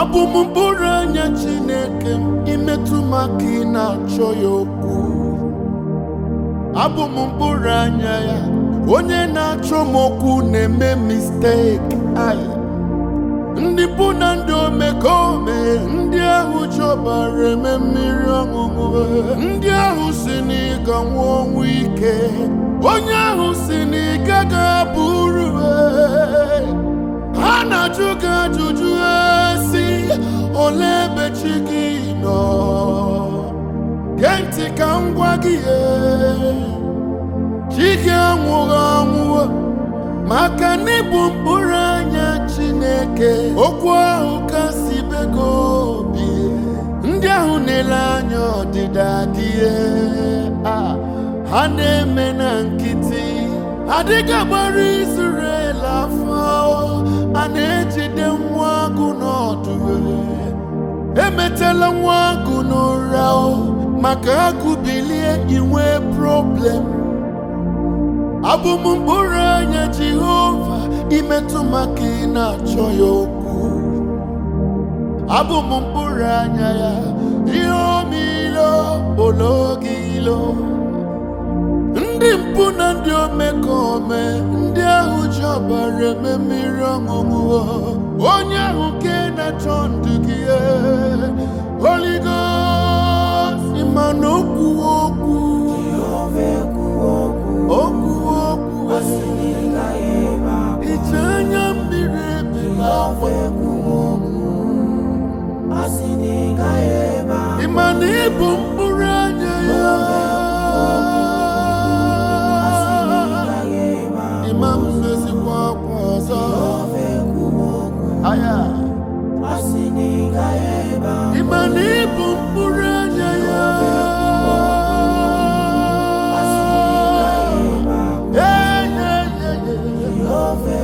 abụ m mkpụrụ anya Chineke m imetụ m aka ị na-achọ ya okwu abụ m mkpụrụ anya ya onye na-achọ m okwu na-eme misteki anyị ndị bụ na ndị omekome ndị ahụ chọbara eme mmiri ọṅụṅụ ndị ahụ si n'ịga nwa ọnwụ ike onye ahụ ole ebe chi gị nọ gee ntị ka m gị e chi gị anwụghị anwụọ maka n'ịbụ mkpụrụ anya chineke okwu ahụ ka si bego obi e. ndị ahụ na-ele anya ọdịda adịghị e. ha na-eme na nkịtị adịghị agbara izurela afọ a na-ejide nwa agụ n'ọdụ emetela nwa agụ n'ụra maka agụ bilie inwe problem abụm mkpụrụ anya Jehova imetụ maka ị na-achọ ya okwu abụm mkpụrụ anya ya ihe omilo olo ilo ndị mpụ na ndị omekome ndị ahụ ji ọbara eme mmiri ọṅụṅụ onye ahụ ke na-achọ ndụ gị e, oligo ma na okwu okwu okwuwe okwu e. ije anya mmiri ebi n'ọkwa ịma na ịbụ mkpụ mana ịbụ mkpụrụ anya ya ee